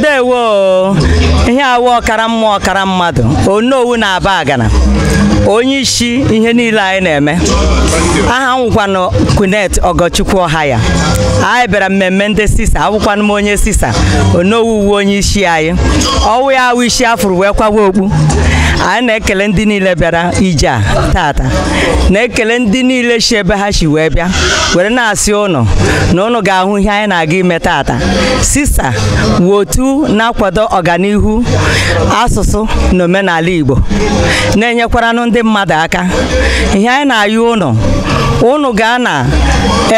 ndewo ihe awụ ọkara mmụọ ọkara mmadụ onowu na-aba agana onye isi ihe niile anyị na-eme aha nwụkwanụ kunet ọgọchukwu ọha ya anyị bịara mmemme ndị sisa awụkwanụ m onye sisa onowu uwe onye isi anyị ọwụ ya awụ isi afụrụ wee kwawa okpu anyị na-ekele ndị niile bịara ije a tata na-ekele ndị niile si ebe ha si wee bịa were na-asị ụnọ na ụnụ ga-ahụ ihe anyị na-aga ime tata sista wotu na-akwado ọganihu asụsụ na omenala Igbo na-enyekwaranụ ndị mmadụ aka ihe anyị na-ayụ ụnọ unu gaa na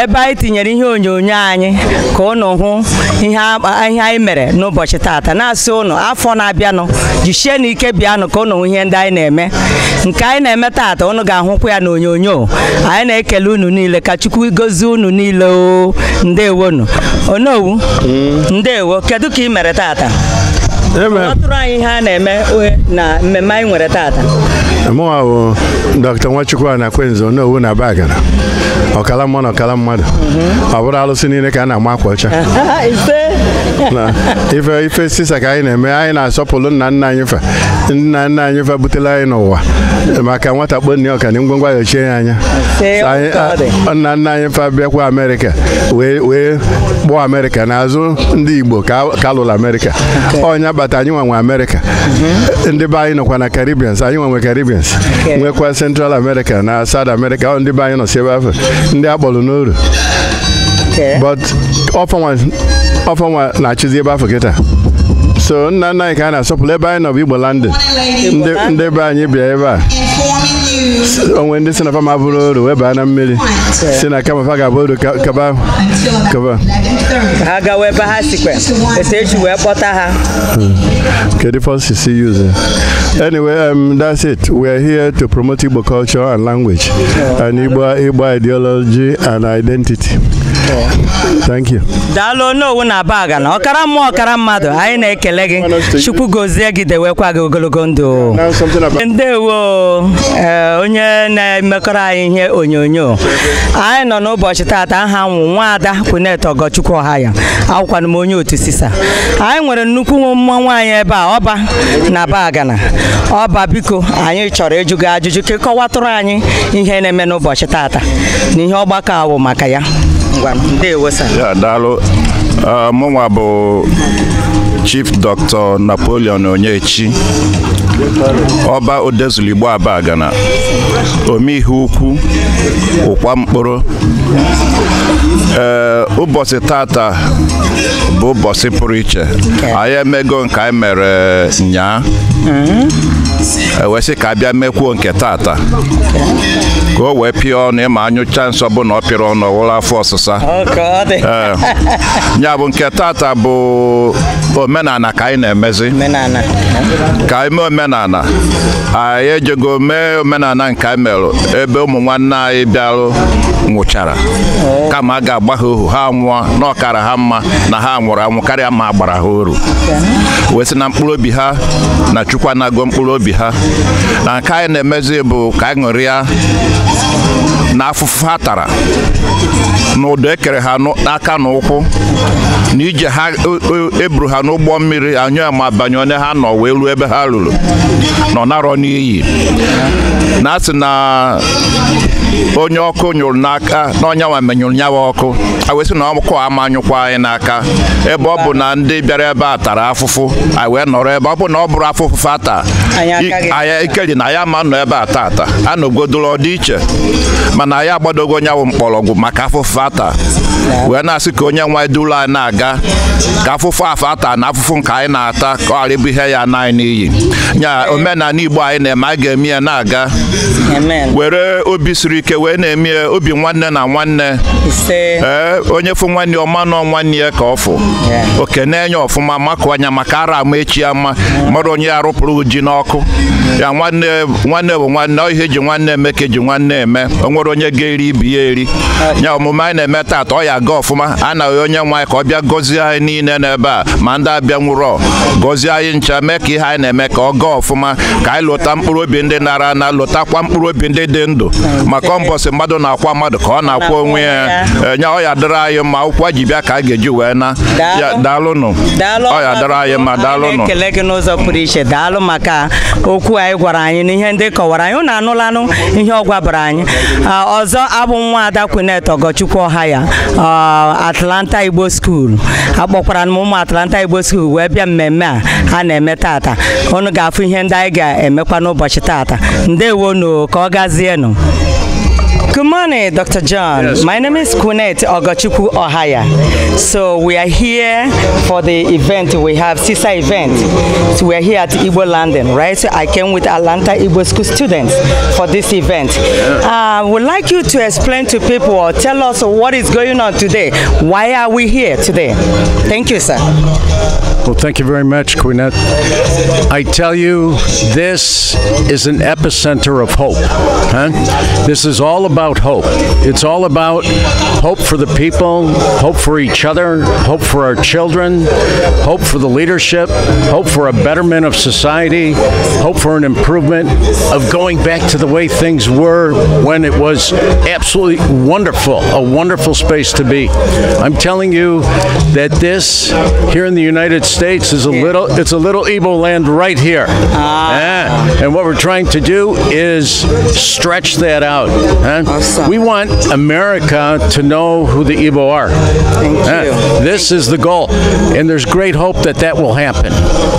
ebe anyị tinyere ihe onyonyo anyị ka unu hụ ihe anyị mere n'ụbọchị tata na-asị unu afọ na-abịanụ jichie na ike bịanụ ka unu hụ ihe ndị anyị na-eme nke anyị na-eme tata unu ga-ahụkwa ya na onyonyo anyị na-ekele unu niile ka Chukwu gozie unu niile o ndewonu onowu hmm. ndewo kedu ka ị mere tata ọtụrụ anyị ha a na-eme na mmemme anyị nwere taata mụnwa bụ dọkịta nwachukwu a na-akwenzo n'owu na be agara ọkala mmụọ na ọkala mmadụ ọ bụrụ alụsị niile ka a na-ama akwa ọcha ife ife sisa ka anyị na-eme anyị na-asọpụrụ nna nna anyị fe nna nna anyị fabutela anyị n'ụwa maka nwata kpọnne ọka na ngwongwo ya ya anya nna nna anyị fabịakwa amerịka wee kpọọ amerịka n'azụ ndị igbo ka alụrụ amerịka ọnya kpata anyị nwa nwe amerịka mm-hmm. ndị be anyị nọkwa na karibians anyị nwa nwe nwekwa central america na south america ndị be anyị nọ si ebe afọ ndị a kpọrọ n'oru but ọfanwa na-achịzi ebe afọ kịta so nna nna anyị ka a na-asọpụrụ ebe anyị nọ bụ igbo landị ndị be anyị bịa ebe a onwe ndị si na fama bụrụ oru wee baa na mmiri si na kama fa ga-abụ oru kaba kaba ha gawa ebe ha sikwe etu eji wee kpọta ha hmm. kedu fọsi si yuze anyway um, that's it we are here to promote igbo culture and language and igbo igbo ideology and identity daalụ onye owu na aba aga na ọkara mmụọ ọkara mmadụ anyị na-ekele gị chukwu gozie gị dewekwa gị ogologo ndụ ndewo eh, onye na-emekọrọ anyị ihe onyonyo anyị nọ n'ụbọchị taata aha nwụ nwaada kwunet ọgọchukwu ọha ya akwụkwana m onye otu sisa anyị nwere nnukwu mmụọ nwaanyị ebe a ọba na bagana ọba biko anyị chọrọ ịjụ gị ajụjụ ka ịkọwatụrụ anyị ihe na-eme n'ụbọchị taata na ihe ọgbakọ awụ maka ya daalụ mụnwa bụ chief dr napoleon onyechi ọba odezuligbo aba ome omeihe ukwu ụkwa mkpụrụ ee ụbọchị tata bụ ụbọchị pụrụ iche anyị emego nke anyị mere e, nyaa mhm. ewesị ka abịa mekwuo nke tata ka o wee pịa ọnụ ịma anyụcha nsọ bụ na ọ pịrị ọnụ ọwụrụ afọ ọsịsa ya bụ nke tata bụ omenala ka anyị na-emezi ka anyị mee omenala anyị ejego mee omenala nke anyị merụ ebe ụmụ nwanne anyị bịarụ nwụchara kama a ga-agba ha ohu ha nwụọ na ọkara ha mma na ha nwụrụ anwụ karịa ma a gbara ha oru wee sị na mkpụrụ obi ha na chukwa anago mkpụrụ obi ha na nke anyị na-emezi bụ ka anyị ṅụrịa na afụfụ ha tara na ụdọ ekere ha n'aka na ụkwụ na ije ha eburu e, e ha n'ụgbọ mmiri anyụ ma banye onye ha nọ wee ruo ebe ha ruru nọ narọ n'iyi na asị na onye ọkụ nyụrụ n'aka na ọnyanwa menyụrụ nyawa ọkụ a sị na ọkụ amanyụkwa anyị n'aka ebe ọ bụ na ndị bịara ebe a tara afụfụ wee nọrọ ebe ọ bụ na ọ bụrụ afụfụ ata anya na ya ma nọ ebe a taata a nọgodoro ọdịiche mana anyị agbadogo nyanwụ mkpọrọgwụ maka afụfụ ata wee na-asị ka onye nwa duru anyị na-aga ka afụfụ afọ ata na afụfụ nke anyị na-ata ka ọ ghara ịbụ ihe ya na n'iyi nya omenala Igbo anyị na-eme a ga-eme ya na-aga were obi siri ike wee na-eme obi nwanne na nwanne ee eh, onye fụ nwanne ọma nọ nwanne ya ka ọ fụ oke na-enye ọfụma makụ anya maka ara ama echi ama mmadụ onye ya rụpụrụ ji n'ọkụ ya nwanne nwanne bụ nwanne ọ ihe ji nwanne eme ka eji nwanne eme o nwere onye ga-eri ibi ya eri ya ọmụma anyị na-eme taa ọ ya aga ọfụma a na onye nwe anyị ka ọ bịa gọzie anyị niile n'ebe a ma ndị abịa nwụrụ gọzie anyị ncha mee ka ihe anyị na-eme ka ọ gaa ọfụma ka anyị lụta mkpụrụ obi ndị nara ana lụtakwa mkpụrụ obi ndị dị ndụ maka kọmbọsị mmadụ na-akwa mmadụ ka ọ na-akwa onwe ya enye ọya eh, dịrị anyị mma ụkwụ ji bịa ka a ga-eji wee na daalụnụ ọya dịrị anyị mma daalụnụ ekele gị n'ụzọ pụrụ iche daalụ maka okwu anyị gwara anyị ihe ndị kọwara anyị unu anụlanụ ihe ọ gwabara anyị ah, ọzọ abụ nwa ada kwinet ọgọchukwu ọha ya ah, Atlanta Igbo School akpọkwara m ụmụ Atlanta Igbo School wee bịa mmemme a a na-eme tata unu ga-afụ ihe ndị anyị ga-emekwa n'ụbọchị tata ndewonu ka ọ gazienụ Good morning, Dr. John. Yes. My name is Kunet Ogachuku Ohaya. So we are here for the event. We have CISA event. So we are here at Igbo London, right? So I came with Atlanta Igbo School students for this event. I uh, would like you to explain to people or tell us what is going on today. Why are we here today? Thank you, sir. Well, thank you very much, Quinette. I tell you, this is an epicenter of hope. Huh? This is all about about hope. It's all about hope for the people, hope for each other, hope for our children, hope for the leadership, hope for a betterment of society, hope for an improvement of going back to the way things were when it was absolutely wonderful, a wonderful space to be. I'm telling you that this here in the United States is a little it's a little Ebo land right here. Ah. And what we're trying to do is stretch that out. Huh? Awesome. We want America to know who the Igbo are. Uh, this is the goal, and there's great hope that that will happen.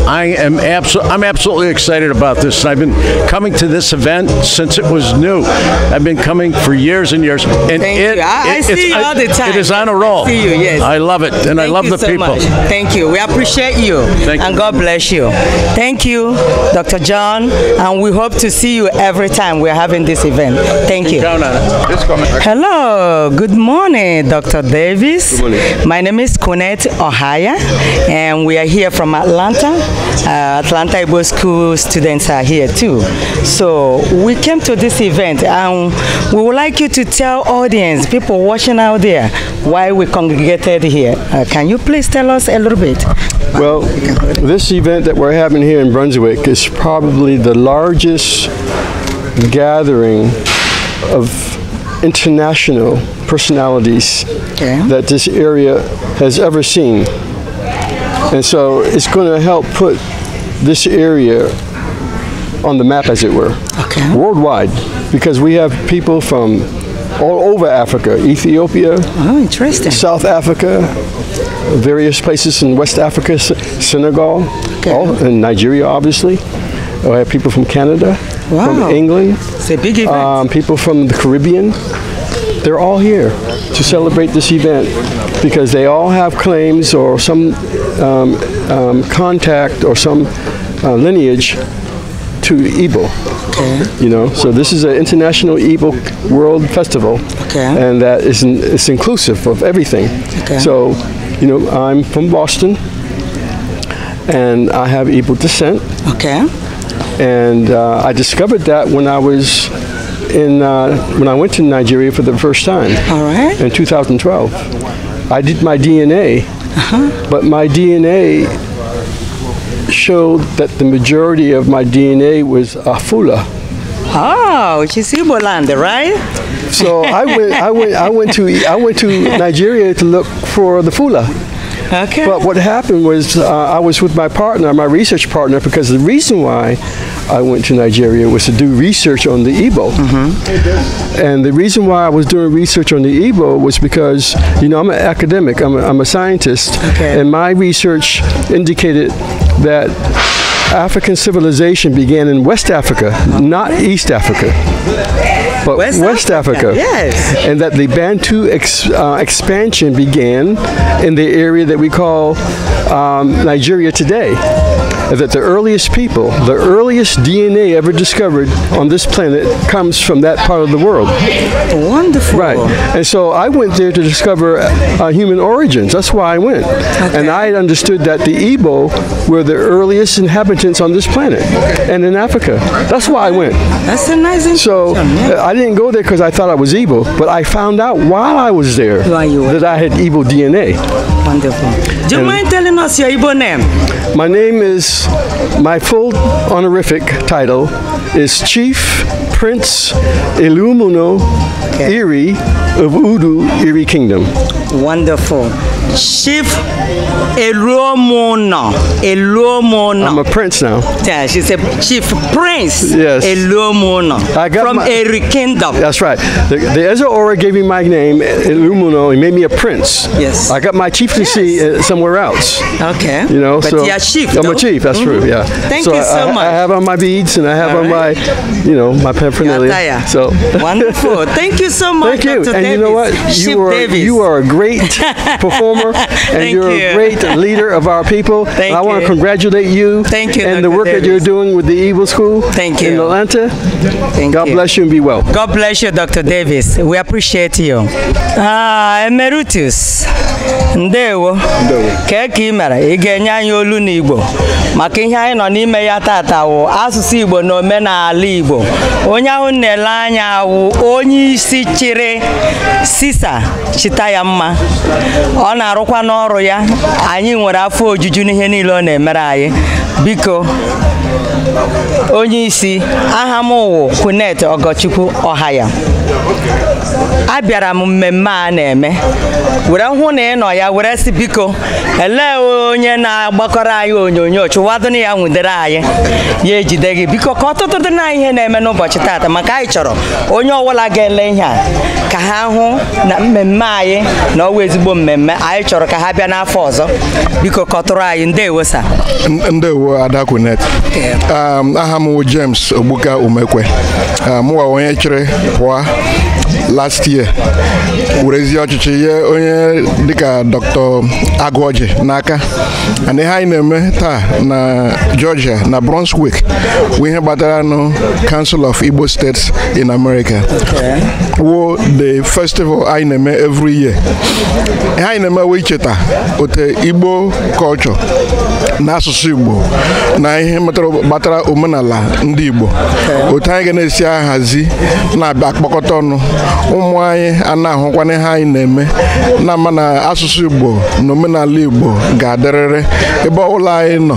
I am absolutely, I'm absolutely excited about this. I've been coming to this event since it was new. I've been coming for years and years, and Thank it, I, it, I see you all the time. It is on a roll. I see you, yes. I love it, and Thank I love the so people. Much. Thank you. We appreciate you, Thank and you. God bless you. Thank you, Dr. John, and we hope to see you every time we're having this event. Thank you. Hello, good morning, Dr. Davis. Morning. My name is Kunette Ohaya, and we are here from Atlanta. Uh, Atlanta Igbo School students are here too. So we came to this event, and we would like you to tell audience, people watching out there, why we congregated here. Uh, can you please tell us a little bit? Well, this event that we're having here in Brunswick is probably the largest gathering of international personalities okay. that this area has ever seen. And so it's going to help put this area on the map, as it were, okay. worldwide, because we have people from all over Africa, Ethiopia, oh, interesting. South Africa, various places in West Africa, Senegal, okay. all, and Nigeria, obviously. We have people from Canada, wow. from England, it's a big event. Um, people from the Caribbean, they're all here to celebrate this event because they all have claims or some um, um, contact or some uh, lineage to Igbo. Okay. You know, so this is an international Igbo World Festival, okay. and that is in, it's inclusive of everything. Okay. So, you know, I'm from Boston, and I have Igbo descent. Okay and uh, I discovered that when I was in uh, when I went to Nigeria for the first time. All right. In 2012, I did my DNA, -huh. but my DNA showed that the majority of my DNA was Afula. Oh, which is Igbo land, right? So I went, I went, I went to, I went to Nigeria to look for the Fula. Okay. But what happened was uh, I was with my partner, my research partner, because the reason why I went to Nigeria was to do research on the Igbo. Mm -hmm. And the reason why I was doing research on the Igbo was because, you know, I'm an academic, I'm a, I'm a scientist, okay. and my research indicated that African civilization began in West Africa, not East Africa, but West, West Africa. Africa. Yes. And that the Bantu ex, uh, expansion began in the area that we call um, Nigeria today that the earliest people, the earliest DNA ever discovered on this planet comes from that part of the world. Wonderful. Right. And so I went there to discover uh, human origins. That's why I went. Okay. And I understood that the Igbo were the earliest inhabitants on this planet and in Africa. That's why I went. That's a nice So yeah. Uh, I didn't go there because I thought I was Igbo, but I found out while I was there that I had Igbo DNA. Wonderful. Do you and um, mind telling us your Igbo name? My name is, my full honorific title is Chief Prince Ilumuno okay. Iri of Udu Iri Kingdom. Wonderful. Chief Elomona. Elomona. I'm a prince now. Yeah, she's a chief prince. Yes. Elomona. I got from Eri Kingdom. That's right. The, the Ezra Aura gave me my name, Elumuno. He made me a prince. Yes. I got my chief practicing yes. Uh, somewhere else. Okay. You know, but so you're chief. I'm though. a chief. That's mm -hmm. true. Mm-hmm. Yeah. Thank so you so I, much. I have on my beads and I have All on right. my, you know, my paraphernalia. So wonderful. Thank you so much. Thank you. Dr. And Davis. you know what? You chief are Davis. you are a great performer and you're you. a great leader of our people. Thank and I want to congratulate you. Thank you. And Dr. the work Davis. that you're doing with the Evil School. Thank you. In Atlanta. Thank God you. bless you and be well. God bless you, Dr. Davis. We appreciate you. Ah, Emeritus. Nde ndewo kee ka ị mere ị ga-enye anyị olu n'Igbo maka ihe anyị nọ n'ime ya tata wụ asụsụ Igbo na omenala Igbo onye ahụ na anya wụ onye isi chịrị sisa chịta ya mma ọ na-arụkwa n'ọrụ ya anyị nwere afọ ojuju n'ihe niile ọ na-emere anyị biko onye isi aha Kunet Ogochukwu ya. abịara m mmemme a na-eme were hụ na ị nọ ya were si biko elee onye na-agbakọrọ anyị onyonyo chụwadon ya nwudere anyị ya ejide gị biko ka ọtụtụ dị na ihe na-eme n'ụbọchị taata maka anyị chọrọ onye ọbụla ga-ele ihe a ka ha hụ na mmemme anyị na ọwa ezigbo mmemme anyị chọrọ ka ha bịa n'afọ ọzọ biko kọtụrụ anyị ndewo sa ndewo adakunet um, aha m James Ogbuka omekwe um, mụwa onye chịrị pụọ Ready? last year werezie ọchịchị nye onye dịka dr agụọji n'aka and ihe anyị na-eme taa na georgia na brunswick bụ ihe gbatara nụ council of igbo states in america wo the festival anyị na-eme every year ihe anyị na-eme wee icheta ote igbo culture na asụsụ igbo na ihe gbatara omenala ndị igbo otu anyị ga na-esi ahazi na-abịa akpọkọta ọnụ ụmụ anyị a na-ahụkwana ihe anyị na-eme na ma na asụsụ Igbo na omenala Igbo ga-adịrịrị ebe ọbụla anyị nọ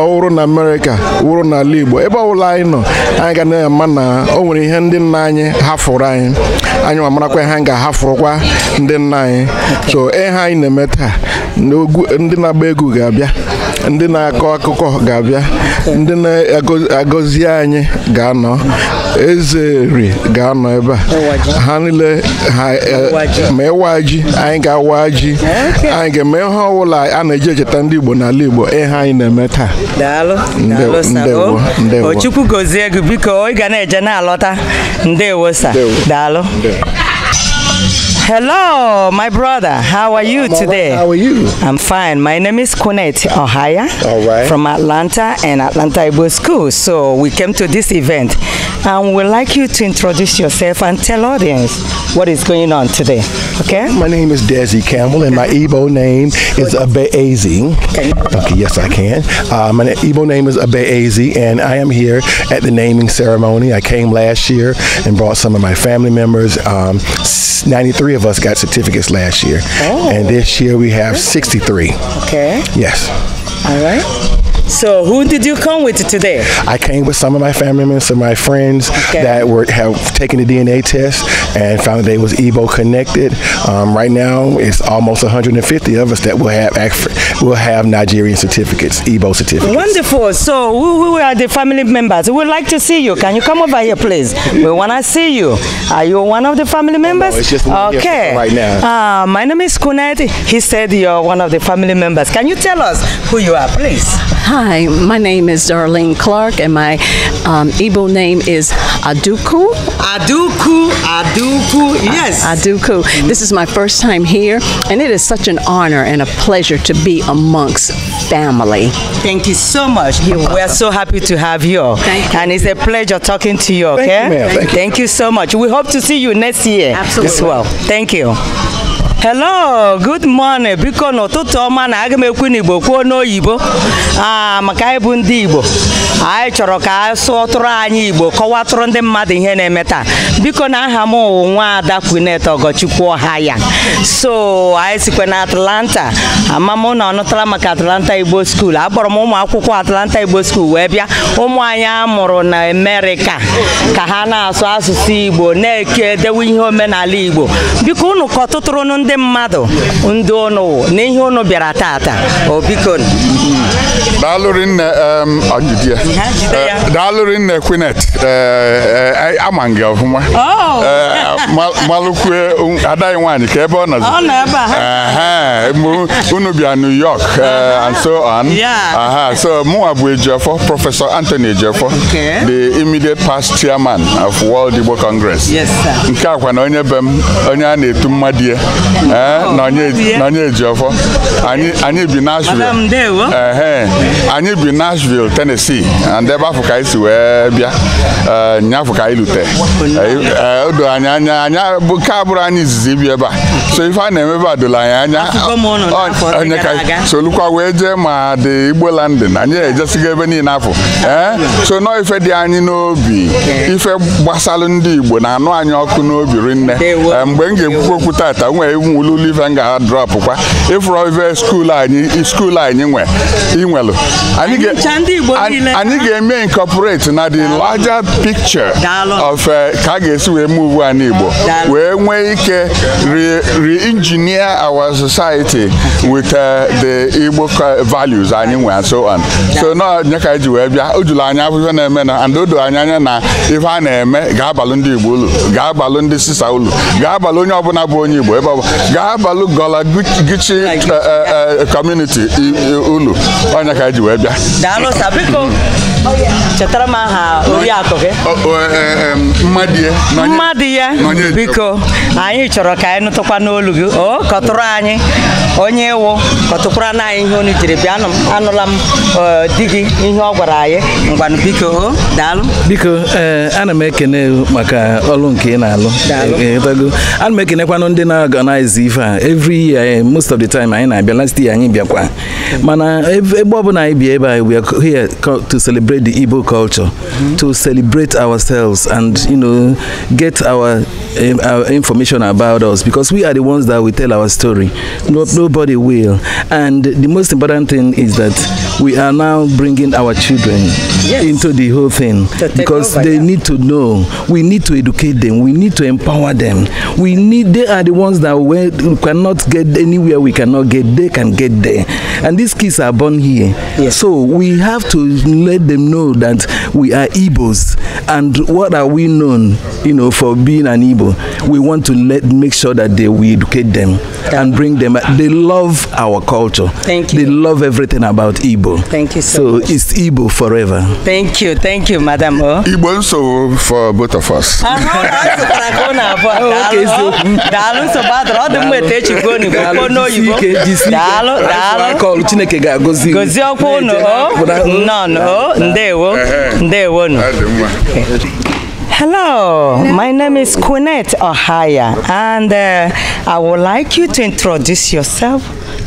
ọwụrụ na Amerịka wụrụ n'ala Igbo ebe ọbụla anyị nọ anyị ga na-ama na o nwere ihe ndị nna anyị hafụrụ anyị anyị ma marakwa ihe anyị ga-ahafụrụkwa ndị nna anyị so ihe anyị na-eme taa ndị na-agba egwu ga-abịa ndị na-akọ akụkọ ga-abịa ndị na-agọzi anyị ga-anọ eze ga-anọ ebe a ha niile e, ma ịwa ji anyị ga-awa ji anyị ga-eme ihe ọbụla a na-eji echeta ndị Igbo n'ala Igbo ihe anyị na-eme taa ndewo ndewo gozie gị biko ị ga na-eje na-alọta ndewo sa daalụ Hello, my brother. How are you I'm today? Right. How are you? I'm fine. My name is Kunet Ohaya all right. from Atlanta and Atlanta Ibo School. So we came to this event and we'd like you to introduce yourself and tell audience what is going on today. Okay? My name is Desi Campbell and my Igbo name is Abeazi. Okay, yes, I can. Uh, my Igbo name is Abeazi and I am here at the naming ceremony. I came last year and brought some of my family members, um, 93 of us got certificates last year, oh. and this year we have 63. Okay. Yes. All right. So who did you come with today? I came with some of my family members, and my friends okay. that were have taken the DNA test and found that they was Ebo connected. Um, right now, it's almost 150 of us that will have will have Nigerian certificates, Ebo certificates. Wonderful. So who, are the family members? We'd like to see you. Can you come over here, please? We want to see you. Are you one of the family members? Oh, no, it's just okay. right now. Uh, my name is Kunet. He said you're one of the family members. Can you tell us who you are, please? Hi, my name is Darlene Clark, and my um, Igbo name is Aduku. Aduku, Aduku, yes. Aduku. This is my first time here, and it is such an honor and a pleasure to be amongst family. Thank you so much. You're We're so happy to have you. Thank you. And it's a pleasure talking to you, okay? Thank you, Thank, Thank you. you so much. We hope to see you next year Absolutely. as well. Thank you. hello good morning biko n'ụtụtụ ọma na aga m ekwu n'igbo kwuo n'oyibo a ah, maka anyị bụ ndị igbo anyị chọrọ ka a sụọ tụrụ anyị igbo kọwatụrụ ndị mmadụ ihe na-eme taa biko na aha m nwa ada kwunet ọgọchukwu ha ya so anyị sikwa na atlanta ama na ọnụtara maka atlanta igbo skuul akpọrọ m ụmụ akwụkwọ atlanta igbo skuul wee bịa ụmụ anyị amụrụ na amerika ka ha na-asụ asụsụ igbo na-eke dewe ihe omenala igbo biko unu kọtụtụrụ ndị mmadụ ndị ọnụ n'ihe ụnụ bịara tata o biko daalụrị nne kwinet eh, eh, eh, ama gị ọfụma oh. malụkwue um, adaghị nwaanyị ka ebe ọ nọ unu bịa New York uh-huh. and so on so mụnwa bụ Ejiofọ prọfesọ Antony Ejiofọ the immediate past chairman of World Igbo Congress nke akwa na onye be m onye a na-etu mmadụ ya Eh, n'onye eji ọfọ anyị bi Nashville anyị bi Nashville Tennessee and ebe afọ ka anyị si wee bịa eh, afọ ka anyị lute eh, odo anyị anya anya nke abụrụ anyị izizi ibi ebe a so ife a na-eme ebe a doro anyị anya onye ka solukwa wee jee ma dị Igbo landin anyị ejesigo ebe niile afọ so nọọ ife dị anyị n'obi ife gbasalụ ndị Igbo na-anụ anyị ọkụ n'obi rinne mgbe m ga-ekwukwu okwu tata nwee mụwululive nga kwa ịfụrụ ive skuul anyị skuul anyị nwe inwelu anyị ga-eme incorporate na the larger picture of eh, ka a ga-esi wee move an Igbo wee nwee ike re-engineer our society with eh, the Igbo values anyị nwe so on so na nye ka eji wee bịa o juru anya afụfe na-eme na and odo anyị anya na ife a na-eme ga agbalụ ndị Igbo ulu ga agbalụ ndị sisa ulu ga agbalụ onye ọbụla bụ onye Igbo ebe ọbụla gaa balụ gọla gichi kọmuniti eh, eh, eh, unu onye ka e ji wee bịa chetara m aha oriakụ gị mmadụ ya biko anyị chọrọ ka anyị nụtụkwa n'olu gị o kọtụrụ anyị onye iwu kọtụkwara na ihe onu jiri bịa anụla m e, di gị ihe ọ gwara anyị ngwanụ biko daalụ biko e, ana m ekene maka ọlụ nke ị na-alụ e, ana m ekenekwanụ ndị na-organize ife a every year most of the time anyị na-abịa last year anyị bịakwa mana ebe ọbụla anyị bịa ebe anyị we here to celebrate the Igbo culture mhm. to celebrate ourselves and you know get our, uh, our information about us because we are the ones that we tell our story no, no nobody will. And the most important thing is that we are now bringing our children yes. into the whole thing because over, they yeah. need to know. We need to educate them. We need to empower them. We need. They are the ones that we cannot get anywhere. We cannot get. They can get there. And these kids are born here. Yes. So we have to let them know that we are Igbos. And what are we known, you know, for being an Igbo? We want to let make sure that they we educate them and bring them. They love our culture. Thank you. They love everything about Igbo. Thank you so, so much. it's Igbo forever. Thank you. Thank you, Madam O. Oh. Igbo so for both of us. Chineke ga-agọzi gozie ọkwa unu o oh. oh, nọ nọ ndewo ndewonu Hello, my name is Quinette Ohaya, and uh, I would like you to introduce yourself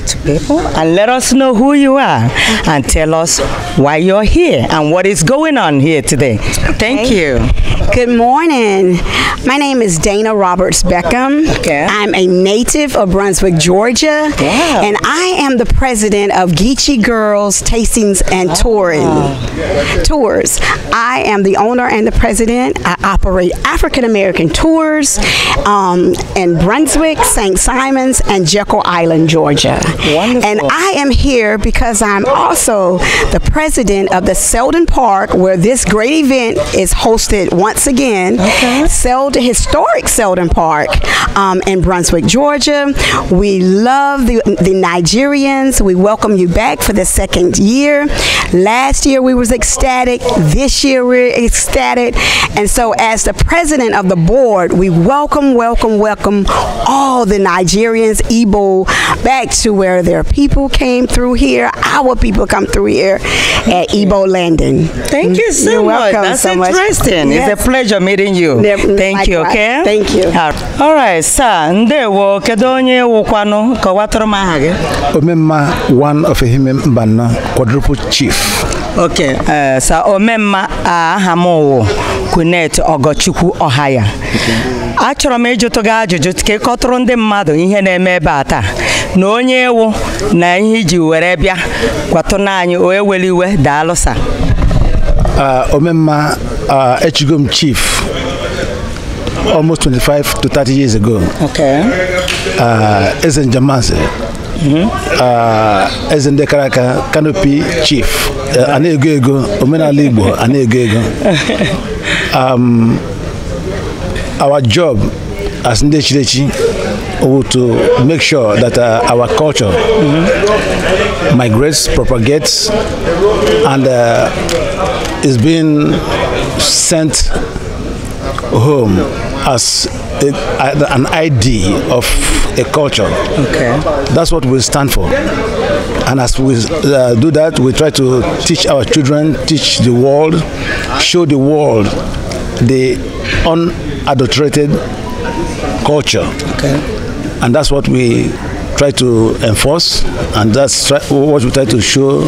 to people and let us know who you are and tell us why you're here and what is going on here today. Thank okay. you. Good morning. My name is Dana Roberts Beckham. Okay. I'm a native of Brunswick, Georgia. And I am the president of Geechee Girls Tastings and ah. Touring. Tours. I am the owner and the president. I operate African American tours um, in Brunswick, St. Simons, and Jekyll Island, Georgia. Wonderful. And I am here because I'm also the president of the Selden Park, where this great event is hosted once again. Okay. Selden, historic Selden Park um, in Brunswick, Georgia. We love the, the Nigerians. We welcome you back for the second year. Last year we was ecstatic. This year we're ecstatic. And so as the president of the board, we welcome, welcome, welcome all the Nigerians, Igbo, back to where where their people came through here. Our people come through here at Ebo Landing. Thank you so You're much. Welcome That's so interesting. Much. Yes. It's a pleasure meeting you. Thank you, okay? Thank you. All right, sir. Ndewo, kedu onye wụkwanụ kọwatụrụ m aha gị? one of mba Mbana, quadruple chief. Okay, uh, sir, ome mma m wụ Kunet Ogochukwu ohaya Achọrọ m ịjụtụ gị ajụjụ ka ịkọtụrụ ndị mmadụ ihe na-eme ebe a taa na onye ewu na ihe iji were bịa kwatụna anyị onye were iwe daalụsa ah, omemma mma, ah, m chief almost 25 to 30 years ago ah, eze njemanze mhm. eze ndị kara aka kanopi chief a ego ego omenala igbo a ego ego um, our job as ndị echirechi who to make sure that uh, our culture mm -hmm. migrates, propagates, and uh, is being sent home as a, an ID of a culture. Okay. That's what we stand for. And as we uh, do that, we try to teach our children, teach the world, show the world the unadulterated culture. Okay. and that's what we try to enforce and that's try, what we try to show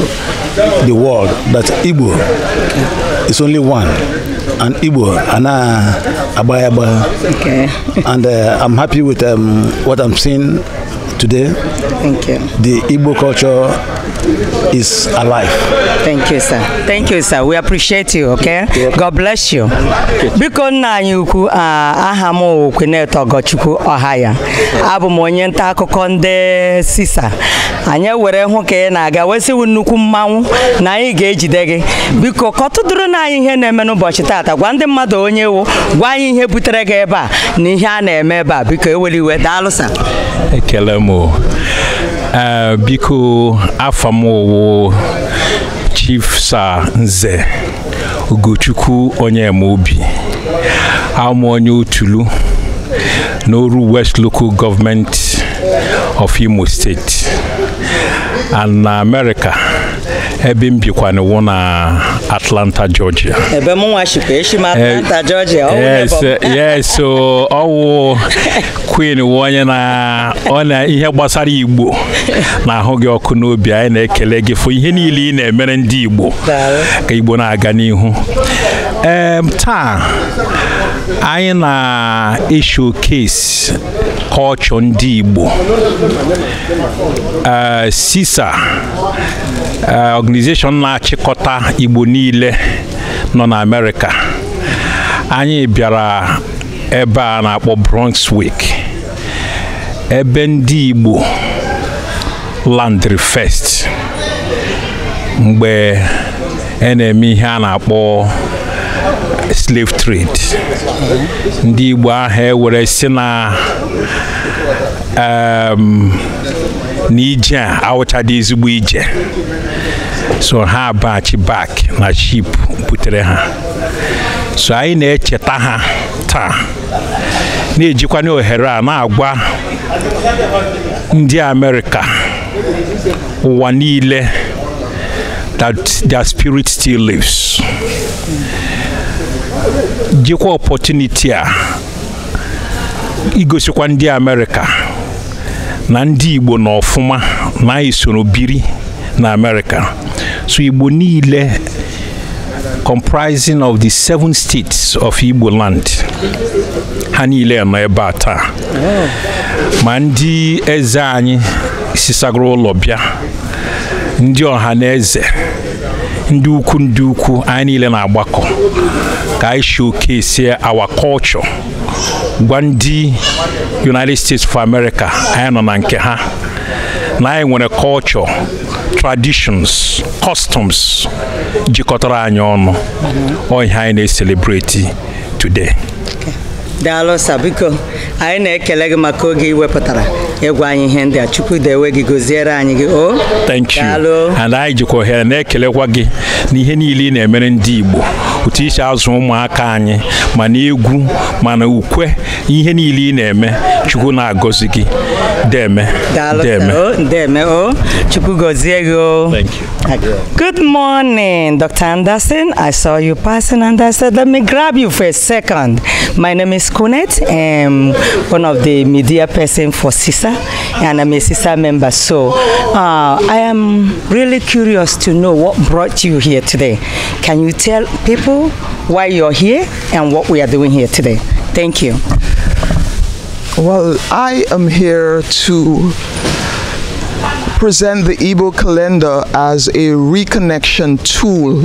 the world that Igbo is only one and Igbo and Abayaba okay. and uh, I'm happy with um, what I'm seeing today. Thank you. The Igbo culture is alive. Thank you, sir. Thank you, sir. We appreciate you, okay? God bless you. Biko nna anyị ukwu aha m Okweneto Ogochukwu Ọhaya. Abụ m onye nta akụkọ ndị sisa. Anyị were hụ ka ị na-aga wesiwu nnukwu mmanwụ na anyị ga-ejide gị. Biko kọtụdụrụ na anyị ihe na-eme n'ụbọchị taata gwa ndị mmadụ onye wu gwa anyị ihe butere gị ebe a na ihe a na-eme ebe a biko eweliwe daalụ sa. Ekele m Eh, biko afọ m owo chief sa nze ugochukwu onyemaobi amụ onye otulu n'oru west local government of imo state and na america ebe m na wụ na Atlanta Georgia ebe m nwachikwa echi m Atlanta Georgia eh, eh, yes so ọwụ Queen wụ onye na ọ na ihe gbasara Igbo na-ahụ gị ọkụ n'obi anyị na-ekele gị fụ ihe niile ị na-emere ndị Igbo ka Igbo na-aga n'ihu ee taa anyị na-esho kesi culture ndị Igbo sisa eh, organization na-achịkọta Igbo niile nọ na Amerịka anyị bịara ebe a na-akpọ Bronx ebe ndị Igbo landri first mgbe a e na-eme ihe a na-akpọ slave trade ndị Igbo ahụ ewere si na Um, na ije a dị ezigbo ije so ha abaghachi bak na ship butere ha so anyị na-echeta ha taa na-ejikwa ohere a na-agwa ndị amerịka ụwa niile that their spirit still lives jikwa opportunity a igosikwa ndị amerịka na ndị Igbo nọ ọfụma na anyị biri na America so Igbo niile comprising of the seven states of Igbo land ha niile nọ ebe a taa ma ndị eze anyị sisagoro ụlọ bịa ndị ọha na eze ndị ukwu ndị ukwu anyị niile na-agbakọ ka anyị si our culture gwa ndị united states of america anyị nọ na nke ha na anyị nwere culture traditions customs jikọtara anyị ọnụ ọhịa anyị na-eselebreti today daalụsa biko anyị na-ekele gị maka oge ị wepụtara ịgwa anyị ihe ndị a chukwu dewe gị goziere anyị gị o thank you and anyị jikwa ohere na-ekelekwa gị na ihe niile ị na-emere ndị igbo pụta isi azụ ụmụaka anyị mana egwu mana ukwe ihe niile ị na-eme chukwu na-agọzi gị Deme. Deme. Oh, Deme. Oh. Chukugoziego. Oh. Thank you. Good morning, Dr. Anderson. I saw you passing and I said, let me grab you for a second. My name is Kunet. I'm um, one of the media person for CISA and I'm a CISA member. So uh, I am really curious to know what brought you here today. Can you tell people why you're here and what we are doing here today? Thank you. Well, I am here to present the Igbo calendar as a reconnection tool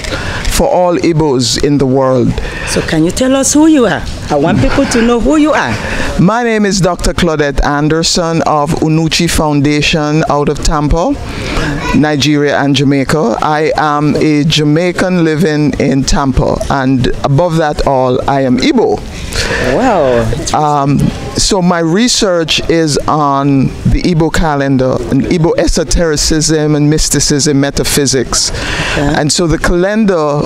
for all Igbos in the world. So can you tell us who you are? I want people to know who you are. My name is Dr. Claudette Anderson of Unuchi Foundation out of Tampa, Nigeria and Jamaica. I am a Jamaican living in Tampa, and above that all, I am Igbo. Wow. Um, so my research is on the Igbo calendar and Igbo esotericism and mysticism, metaphysics. Okay. And so the calendar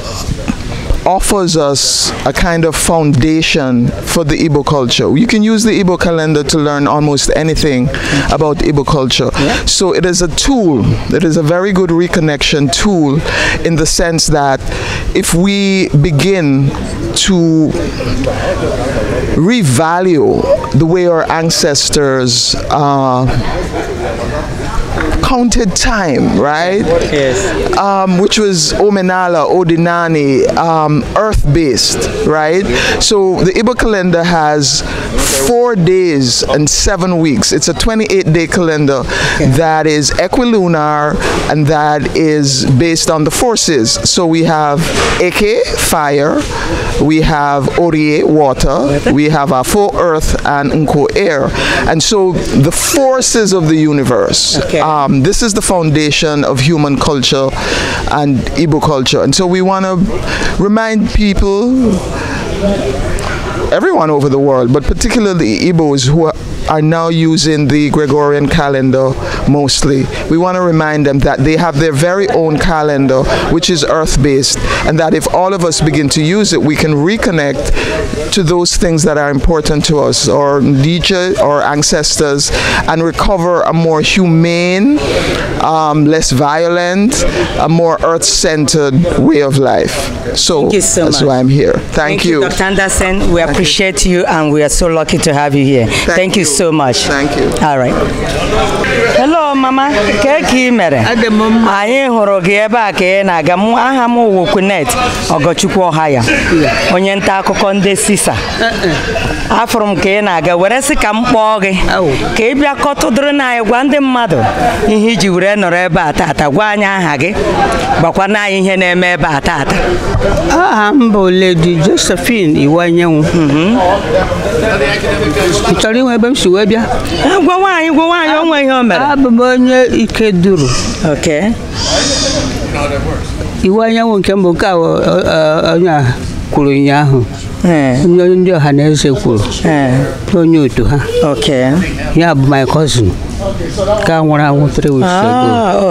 offers us a kind of foundation for the Ibo culture. You can use the Ibo calendar to learn almost anything about Ibo culture. Yeah. So it is a tool, it is a very good reconnection tool in the sense that if we begin to revalue the way our ancestors uh, counted time, right? Yes. Um, which was Omenala, Odinani, um, earth based, right? So the Igbo calendar has four days and seven weeks. It's a 28 day calendar that is equilunar and that is based on the forces. So we have Eke, fire, we have Orie, water, we have Afo, earth, and Nko, air. And so the forces of the universe. Okay. Um, this is the foundation of human culture and Igbo culture. And so we want to remind people everyone over the world, but particularly Igbos who are are now using the Gregorian calendar mostly. We want to remind them that they have their very own calendar, which is earth based, and that if all of us begin to use it, we can reconnect to those things that are important to us, or Nietzsche, or ancestors, and recover a more humane, um, less violent, a more earth centered way of life. So, so that's much. why I'm here. Thank, Thank you. you. Dr. Anderson, we Thank appreciate you. you. and we are so lucky to have you here. Thank, Thank you. you so much. Thank you. All right. Hello mama, kee ka ị mere? Anyị hụrụ gị ebe a ka ị na-aga mụ aha m wụ Kunet Ogochukwu Ohaya onye nta akụkọ ndị Sisa. Afụrụ m ka ị na-aga were sị ka m kpọọ gị ka ị bịa kọtụdụrụ na anyị gwa ndị mmadụ ihe iji were nọrọ ebe a taata gwa anyị aha gị gbakwa na anyị ihe na-eme ebe a taata. Aha m bụ Lady Josephine Iwanyenwu. Mhm. Ị inwe ebe m si wee bịa ah, gwa nwaanyị gwa nwaanyị onwe ihe o mere abụ m onye ike duru iwu anyanwụ nke mbụ nke a onye a kwuru ụnyaahụ onye ndị ọha na eze kwuru onye otu ha ya bụ my cousin ka nwụrụ anwụ three weeks ago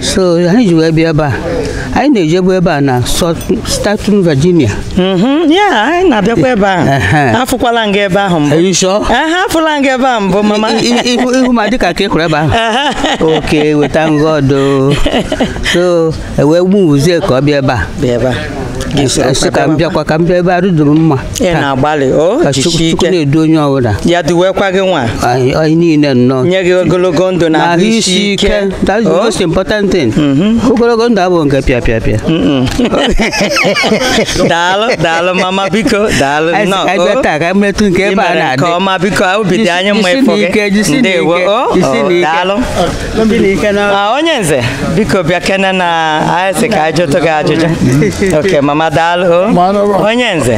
so anyị ji wee bịa ebe a anyị na-ejebu ebe a na Staten Virginia ya anyị na-abịakwa ebe a afụkwala nga ebe ahụ mbụ afụla nga ebe ahụ mbụ mama ihu ma dịka ka ịkụrụ ebe ahụ oke weta ngọdo so ewee gbu uzie ka ọ bịa ebe a ga-esi ka m bịakwa ka m bịa ebe arụduru mma chukwu na-edu onye ọbụla ya duwekwa gị nwa anyị niile nnọọ nye gị ogologo ndụ na ahụ isi ike that's the oh. most important thing mm-hmm. ogologo ndụ abụghị nke pịa pịa pịa daalụ daalụ mama biko daalụ nnọọ oh. taa ka mmetụ nke ebe a na-adị ọma biko awụ dị anyị mma ịfụ gị ndewo oh, daalụ ah, onye nze biko bịa kene na ayịsị ka anyị jụtụ gị ajụjụ mm-hmm. oke mama madalụ onye nze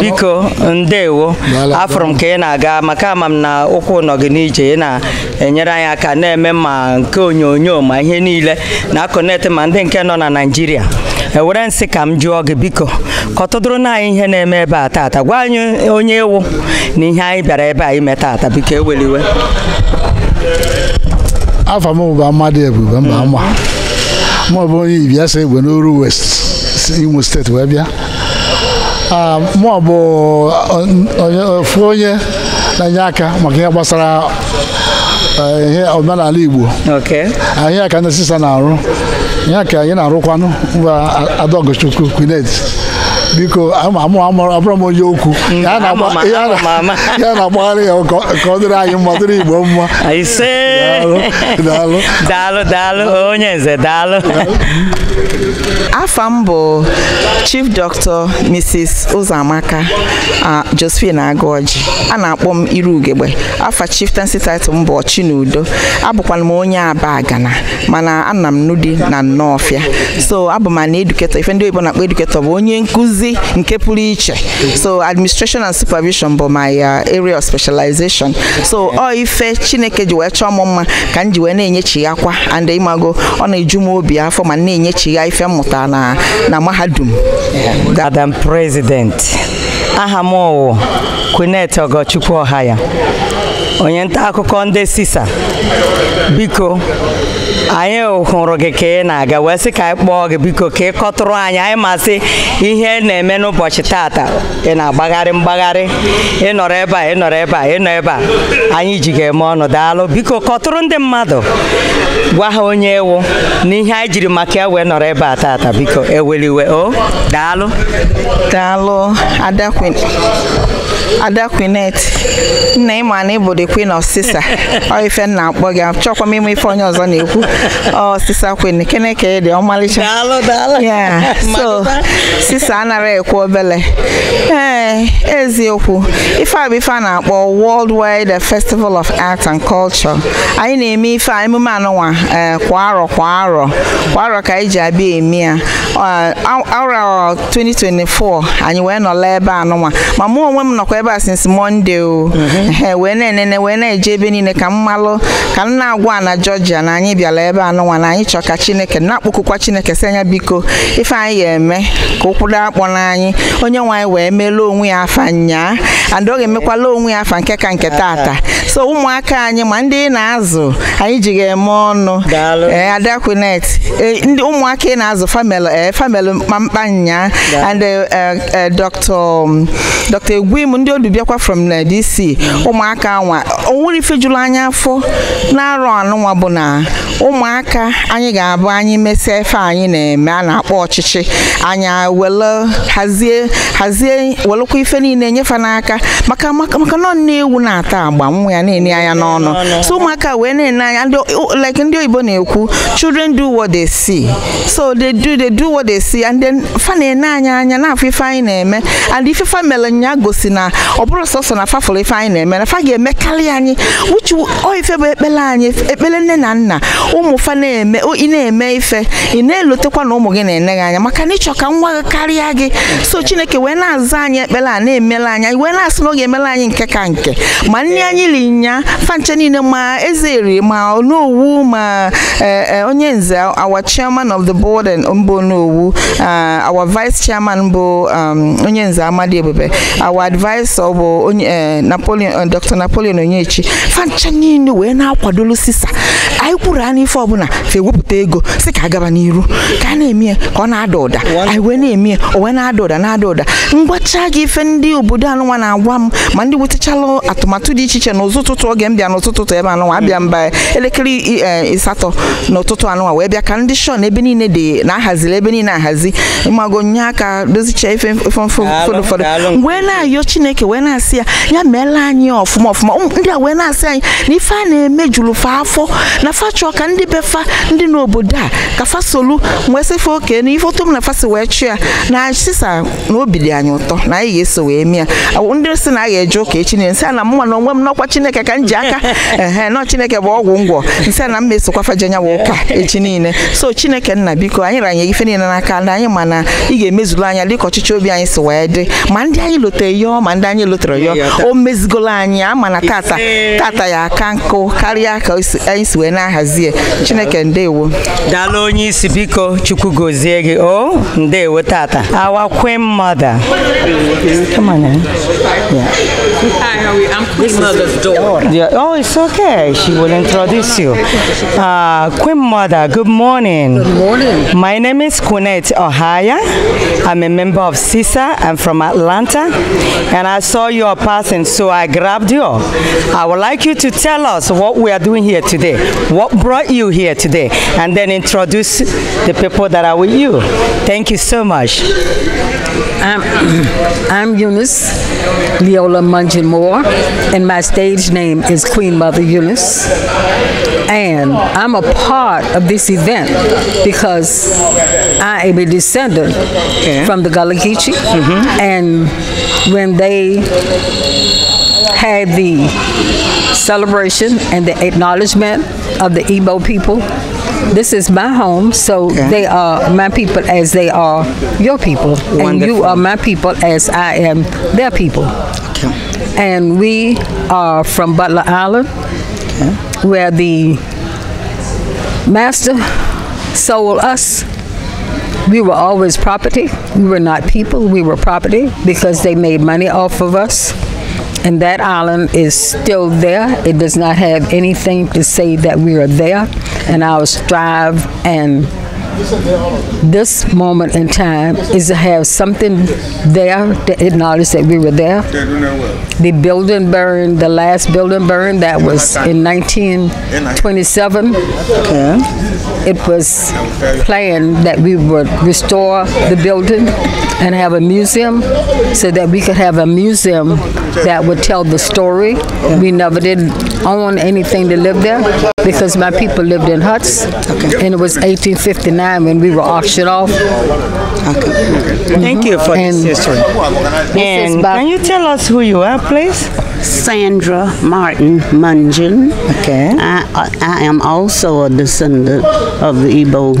biko ndewo afụrụ m ka ị na-aga maka ama m na ụkwụ nọ gị n'ije ị na-enyere anyị aka na-eme ma nke onyonyo ma ihe niile na-akọnetị ma ndị nke nọ na Naịjirịa ewere nsị ka m jụọ gị biko ka ọtụdụrụ na anyị ihe na-eme ebe a taata gwa anyị onye ewu na ihe anyị bịara ebe a ime taata biko eweliwe afọ mụ bụ Amadi Ebube mba mma mụ bụ onye Ibiasa Igwe n'Oru West imo steeti wee bịa mụ bụ ofu onye na-enye eh, aka maka ihe gbasara eh, ihe omenala Igbo ah, ihe ka ndị sista na-arụ ihe ka anyị na-arụkwanụ mba Adaogochukwu Quinet biko abụrụ m onye okwu hmm, ya na-agbagharị ya ka ọ dịrị anyị mma dịrị Igbo mma daalụ daalụ onye nze daalụ afa m bụ Chief Doctor Mrs. Ụzọamaka Josephine Agụọji a na-akpọ m Iru Ugegbe afa chieftaincy title m bụ udo. abụkwala m onye Aba Agana mana ana m Nudi na Nnọọfịa so abụ m na eduketọ ife ndị oyibo na-akpọ eduketọ bụ onye nkụzi nkuzi nke pụrụ iche so administration and supervision bụ my uh, area of specialization so ọ ife chineke ji wee chọọ m mma ka m ji wee na-enyechi ya kwa and ịmago ọ na-eju m obi afọ ma na-enyechi ya ife mmụta na na mahadum madam president aha m ọgọchukwu ọha ya. onye nta akụkọ ndị sisa biko anyị hụrụ gị ka ị na-aga wee sị ka anyị kpọọ gị biko ka ị kọtụrụ anyị anyị masị ihe na-eme n'ụbọchị tata ị na-agbagharị mgbagharị ịnọrọ ebe a ịnọrọ ebe a ịnọ ebe a anyị ji ga-eme ọnụ daalụ biko kọtụrụ ndị mmadụ gwa ha onye ewu na ihe anyị jiri maka ya wee nọrọ ebe a tata biko eweliwe o daalụ daalụ adakwe ada nna ịma na ịbụ the queen of sisa ọ ife nna akpọ gị achọkwa m ife onye ọzọ na-ekwu Ọsịsa sisa queen kene ka dị ọmalịcha so sisa anara ekwu obele ee eziokwu ife a bụ ife a na-akpọ world wide festival of art and culture anyị na-eme ife a emume anụnwa eh, kwa arọ kwa arọ kwa arọ ka anyị ji abịa eme ya arọ 2024 anyị wee nọla ebe anụnwa ma mụ onwe m nọkwa ebe a since Monday o mhm. wee na-enene wee na-eje ebe niile ka mmalụ ka m na-agwa na Georgia na anyị bịara ebe anụnwa na anyị chọọ ka Chineke na-akpọkụkwa Chineke sị anya biko ife anyị ga-eme ka ụkwụdo akpọ n'anyị onye nwe anyị wee melụọ onwe ya afa nyaa and ọ emekwala onwe ya afa nke ka nke taata so ụmụaka anyị ma ndị na-azụ anyị ji ga-eme ọnụ ee ndị ụmụaka ị na-azụ famelu ee famelu mkpamkpa nyaa and eh, eh, eh, Dr. Um, Egwim ndị ndị odu bịakwa from na dc ụmụaka anwa onwere ifejuru anya afọ na-arụ anụnwa bụ na ụmụaka anyị ga-abụ anyị mesịa ife anyị na-eme a na-akpọ ọchịchị anya wele hazie hazie welekwa ife niile nyefe n'aka maka maka nọ na-ewu na-ata agba nwa ya na-enye anya n'ọnụ so ụmụaka wee na-ene anya like ndị oyibo na-ekwu children do what they see so they do they do what they see and then fa na-ene anya anya na-afụ ife anyị na-eme and ife fa mere nya gosi na ọ bụrụ sọsọ na fafụrụ ife anyị na-eme na fa ga karịa anyị uchu oife bụ ekpere anyị ekpere nne na nna ụmụ fa na-eme ị na-eme ife ị na-elotekwa na ụmụ gị na-ene gị anya maka na ịchọ ka nwa gị karịa gị so chineke wee na-aza anyị ekpere a na-emela anyị wee na-asị na oge ga-emela anyị nke ka nke ma nne anyị liri nya fanche niile ma eze eri ma onowu ma e, e, onye nze our chairman of the board mbụ onowu uh, our vice chairman bụ um, onye nze amadi ebube our advice prọfesọ bụ onye eh, napoleon eh, dr napoleon onyechi fancha niile wee na-akwadolu sisa anyị kwuru a ife ọbụla fe wepụta ego si ka agaba n'iru ka a na-eme ya ka ọ na-ada ụda anyị wee na-eme ya o wee na-ada ụda na-ada ụda mgbacha gị ife ndị obodo anụnwa na-agwa m ma ndị wetachala atụmatụ dị iche iche n'ụzụ ụtụtụ oge m bịa n'ụtụtụ ebe anụnwa abịa mba elekere eh, ịsatọ n'ụtụtụ anụnwa wee bịa ka ndị shọn ebe niile dị na-ahaziri ebe niile ahazi mmago nye aka dozicha ife ụfọdụ ụfọdụ wee na-ayọ chineke chineke wee na-asị ya ya meela anyị ọfụma ọfụma ndị a wee na-asị anyị na ife a na-eme juru fa afọ na fa chọọ ka ndị be ndị n'obodo a ka fasolu solu wee sịfe oke na ife otom na fasi wee chụ ya na sisa na obi dị anyị ụtọ na anyị ga-eso wee mịa ndị si na a ga-eje ụka echi na nsị a na mụnwa na onwe m n'ọkwa chineke ka m ji aka ehe nọ chineke bụ ọgwụ ngwọ nsị a na m mesokwa fajenyawa ụka echi niile so chineke nna biko anyị ranye ife niile n'aka na anyị ma na ị ga-emezuru anya dịka ọchịchị obi anyị si wee dị ma ndị anyị lote ya ọma ndị anyị lụtara ya o mezigolo anyị ama tata tata ya aka nkụ karịa ka anyị si wee na-ahazie chineke ndewo daalụ onye isi biko chukwu gozie gị o ndewo tata our queen mother come on yeah. Hi, how are you? I'm Queen Mother's daughter. Yeah. Oh, it's okay. She will introduce you. Uh, queen Mother, good morning. Good morning. My name is Kunette Ohaya. I'm a member of CISA. I'm from Atlanta. And I saw you passing, so I grabbed you. I would like you to tell us what we are doing here today, what brought you here today, and then introduce the people that are with you. Thank you so much. I'm, I'm Eunice Leola Mungeon Moore, and my stage name is Queen Mother Eunice. And I'm a part of this event because I am a descendant okay. from the Gullah Geechee. Mm -hmm. And when they had the celebration and the acknowledgement of the Igbo people this is my home, so okay. they are my people as they are your people, Wonderful. and you are my people as I am their people. Okay. And we are from Butler Island, okay. where the master sold us. We were always property. We were not people. We were property because they made money off of us and that island is still there. It does not have anything to say that we are there, and our strive and this moment in time is to have something there to acknowledge that we were there. The building burned, the last building burned, that was in 1927. Okay. It was planned that we would restore the building and have a museum so that we could have a museum that would tell the story. We never did I want anything to live there because my people lived in huts, okay. and it was 1859 when we were auctioned off. Okay. Mm-hmm. Thank you for and this history. And can you tell us who you are, please? Sandra Martin Munjin. Okay. I, I, I am also a descendant of the Igbo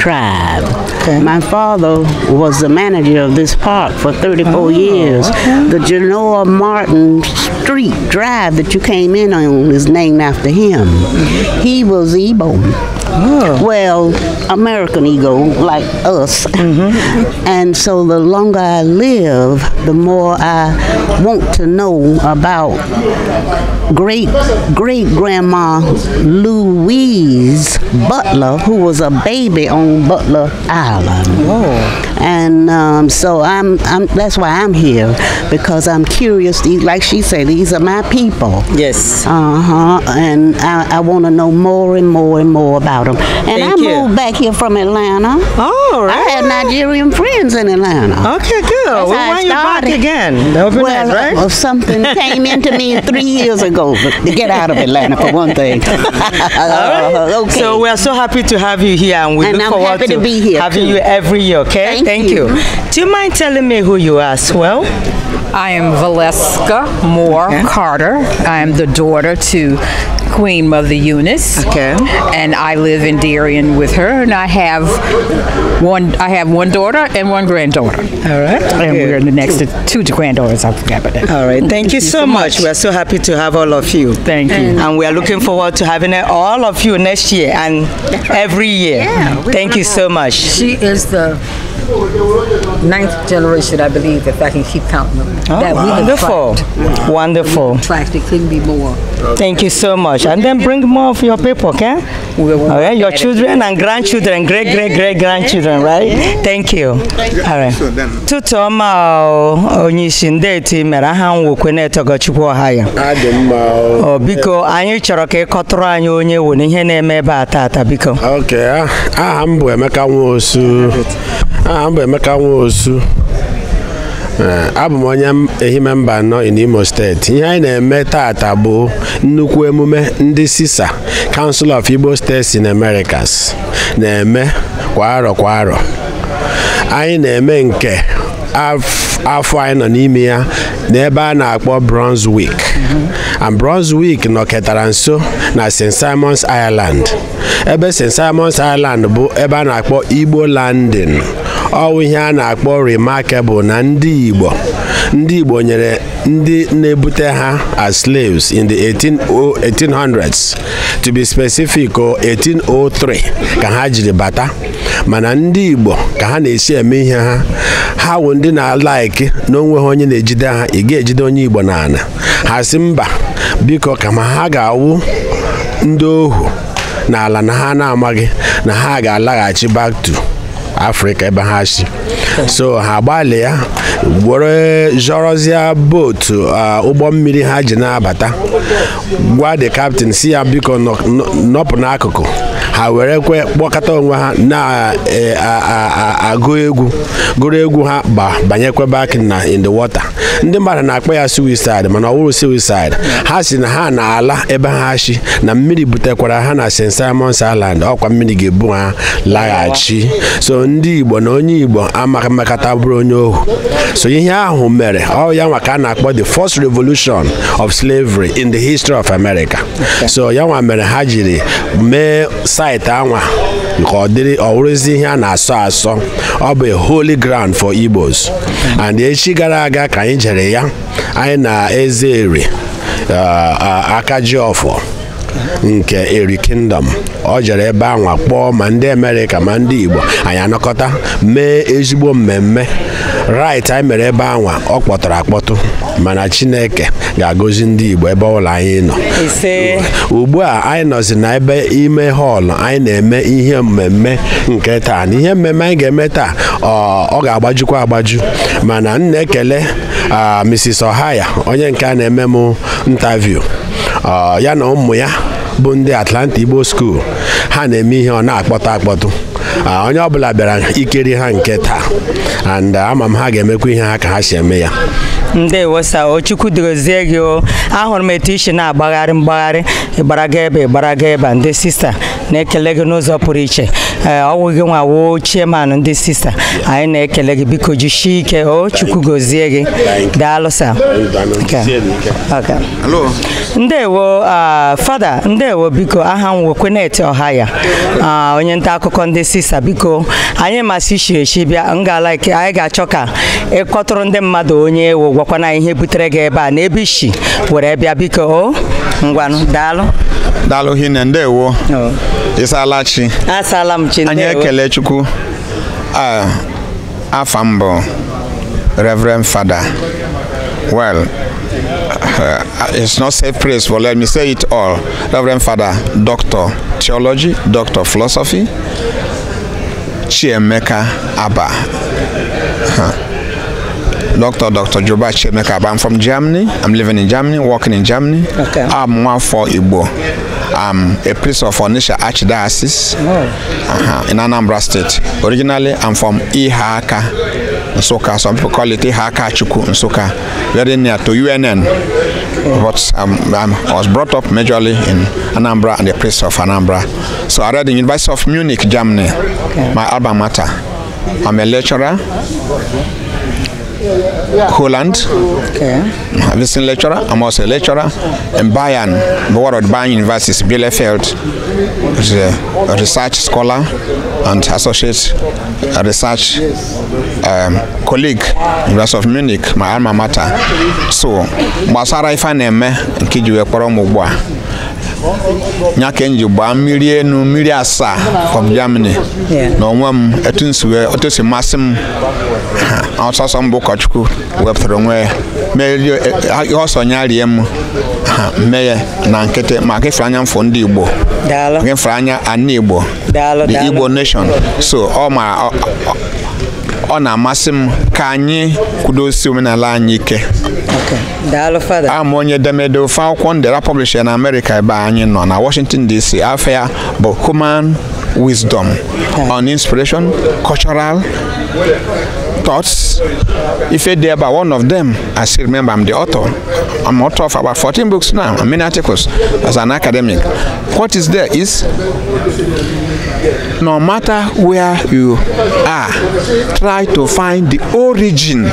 tribe. Okay. My father was the manager of this park for 34 oh, years. Okay. The Genoa Martin Street Drive that you came in on is named after him. He was Ebon. Oh. Well, American ego, like us. Mm -hmm. and so the longer I live, the more I want to know about great great grandma Louise Butler, who was a baby on Butler Island. Whoa. Oh. And um, so I'm, I'm, that's why I'm here because I'm curious. Like she said, these are my people. Yes. Uh huh. And I, I want to know more and more and more about and Thank I you. moved back here from Atlanta. Oh, right. I had Nigerian friends in Atlanta. Okay, good. That's well, why you back again? well, right? Well, something came into me three years ago to get out of Atlanta for one thing. All right. Uh, okay. So we're so happy to have you here, and we and look I'm forward to, to having too. you every year. Okay, thank, thank you. you. Do you mind telling me who you are as well? I am Valeska Moore okay. Carter. I am the daughter to Queen Mother Eunice. Okay. And I live in Darien with her, and I have one. I have one daughter and one granddaughter. All right. And Good. we're the next two granddaughters. I forgot about that. All right. Thank, Thank you, you so much. much. We're so happy to have all of you. Thank you. And, and we are looking forward to having all of you next year and every year. Yeah, Thank you so much. She is the ninth generation, I believe, if I can keep counting them. Oh, that wow. we wonderful. Wow. Wonderful. We tracked. It couldn't be more. Thank you so much. And then bring more of your people, okay? All right, your children and grandchildren, great, great, great grandchildren, right? Thank you. All right. Tutu ọma onye isi ndị eti mere aha m nwokwe na-etogochukwu ọha ya. Ọ biko anyị chọrọ ka ị kọtụrụ anyị onye wo na ihe na-eme ebe a taata biko. Ok, aha m bụ Emeka Nwosu. Aha m bụ Emeka Nwosu. osu eh, abụ m onye ehime mba nọ in imo steeti ihe anyị na-eme taata bụ nnukwu emume ndị sisa council of igbo steeti in americas na-eme kwa arọ kwa anyị na-eme nke afọ anyị nọ n'ime ya n'ebe a na-akpọ bronze week and bronze week nọketara nso na st simons ireland ebe st simons ireland bụ ebe a na-akpọ igbo landing ọwụ ihe a na-akpọ remarkable na ndị Igbo ndị Igbo nyere ndị na-ebute ha as slaves in the 1800s to be specific 1803 ka ha jiri bata mana ndị Igbo ka ha na-esi eme ihe ha ha wụ ndị na-alaiki na ha onye na-ejide ha ị ga-ejide onye Igbo n'ala ha si mba biko kama ha ga-awụ ndị ohu n'ala na ha na-amaghị na ha ga-alaghachi back to afrịka ebe ha si so ha gbalịa were zọrọzịa bootu ụgbọ mmiri ha ji na-abata gwa the captain si ya biko nọpụ n'akụkụ ha were kwe kpọkọta onwe ha na-agụ e, egwu gụrụ egwu ha ba banyekwe back na uh, in the water ndị mmadụ na-akpọ ya suicide mana ọ wụrụ suicide ha si na ha na-ala ebe ha shi na mmiri butekwara ha na St. Simons Island ọkwa mmiri ga-ebu ha laghachi so ndị Igbo na onye Igbo amaghị mmekọta bụrụ onye ohu so ihe ahụ mere ọ ya nwa ka a na-akpọ the first revolution of slavery in the history of America so ya nwa mere ha jiri mee saịtị anwa nke ọ ọwụrụzi ihe a na-asọ asọ ọ bụ holy ground for Igbos and echi gara aga ka anyị jere ya anyị na eze ere uh, akajiọfọ nke eri kingdom ọ jere ebe anwa kpọọ ma ndị Amerịka ma ndị Igbo anyị anọkọta mee ezigbo mmemme right anyị mere ebe anwa ọ kpọtụrụ akpọtụ mana chineke ga-agọzi ndị igbo ebe ụlọ anyị nọ ugbu a anyị nọzi na ebe ime họlụ anyị na-eme ihe mmemme nke taa na ihe mmemme anyị ga-eme taa ọ ga-agbajukwa agbaju mana m na-ekele Mrs. Ohaya onye nke a na-eme m ntaviu ya na ụmụ ya bụ ndị Atlanta Igbo School ha na-eme ihe ọ na-akpọtụ akpọtụ onye ọbụla bịara ikeri ha nke taa and uh, ama m ha ga-emekwa ihe ha ka ha si eme ya Ndị sa ochukwu dịrozie gị o ahụrụ m etu isi na-agbagharị mgbagharị ịgbaraga ebe ịgbaraga ebe ndị sista na-ekele gị n'ụzọ pụrụ iche ọwụ gị nwa woo chairman ndị sista anyị na-ekele gị biko jisie ike o chukwu gozie gị daalụsa ndewo fada ndewo biko aha m wekweneti ọha ya onye nta akụkọ ndị sista biko anyị masị shiri echi bịa ike, anyị ga-achọ ka ịkọtụrụ ndị mmadụ onye ewu gwakwana ihe butere gị ebe a na ebe ishi were bịa biko o ngwanụ daalụ daalụ hinne ndewo ịsaala chi asaala m chi ndewo anyị ekele chukwu afa m reverend fada well uh, it's not safe praise but let me say it all reverend Father, doctor theology doctor philosophy chiemeka aba huh. Doctor, Doctor Joba Chemekab. I'm from Germany. I'm living in Germany, working in Germany. Okay. I'm one for Igbo. I'm a priest of Onisha Archdiocese oh. uh-huh, in Anambra State. Originally, I'm from Ihaka, Nsoka. Some people call it Ihaka Chuku, Nsoka. Very near to UNN. Oh. But um, I'm, I was brought up majorly in Anambra and the priest of Anambra. So I read in University of Munich, Germany. Okay. My alma mater. I'm a lecturer. Holland. Okay. A visiting lecturer. I'm also a lecturer. In Bayern, of Bayern universities, Bielefeld, is a research scholar and associate research um, colleague, University of Munich, my alma mater. So, gbasara ife na-eme nke ji kpọrọ m ugbu a gbaa mmiri enu mmiri asaa from Germany na onwe m etu si masị m ọsọsọ mbụ ụkọchukwu wepụtara onwe ya merie e, e, ọsọ nya rie m mee ya na nkịtị maka ịfere anya mfụ ndị igbo ịfere anya ana igbo the igbo nation so ọ ma ọ na-amasị m ka anyị kwudosi omenala anyị ike ama onye edemede ofe akwụkwọ ndera publisher na amerịka ebe anyị nọ na washington dc afọ ya bụ human wisdom on inspiration cultural thoughts, If it there by one of them, I still remember I'm the author. I'm author of about 14 books now, I mean articles as an academic. What is there is no matter where you are, try to find the origin,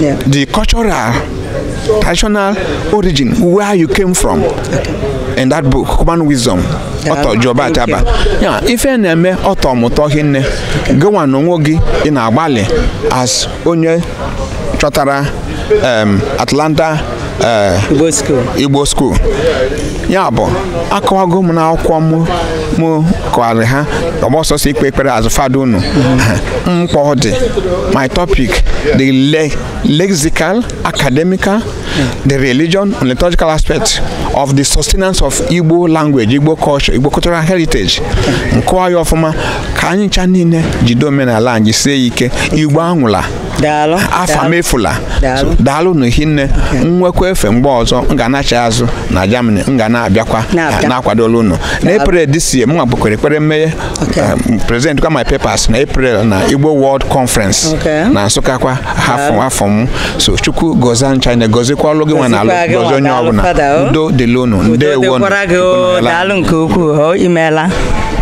yeah. the cultural, traditional origin, where you came from. Okay. in that book human wisdom ọtọ jọba ataba ya ife na-eme ọtọ mụtọ hinne gịnwa na onwe gị ị na-agbalị as onye chọtara um, Atlanta uh, Igbo School ya bụ akọwago m n'akwụkwọ m m kọwarị ha ọgbọsọsọ ikpe ekpere azụfadụ fada unu mkpọ dị my topic the lexical academical the religion and liturgical aspect of the sustenance of igbo language igbo culture igbo cultural heritage nkọwa ya ọfụma ka anyị ncha niile jide omenala anyị sie ya ike igbo anwụla Daalụ. m efula daalụ na hinne nwekwa efe mgbe ọzọ m ga acha azụ na germany m ga na-abịakwa na-akwadola ụnụ na april this m nwa gbakwere ekpere mmeghe um, President kwa my papers na april na igbo world conference na nsụka kwa afọ m so chukwu gozie ncha na ọlụ gị nwa na alụ gozie onye ọbụla oh. udo dịlụ ụnụ ndewo oh. daalụ nke ukwuu oh.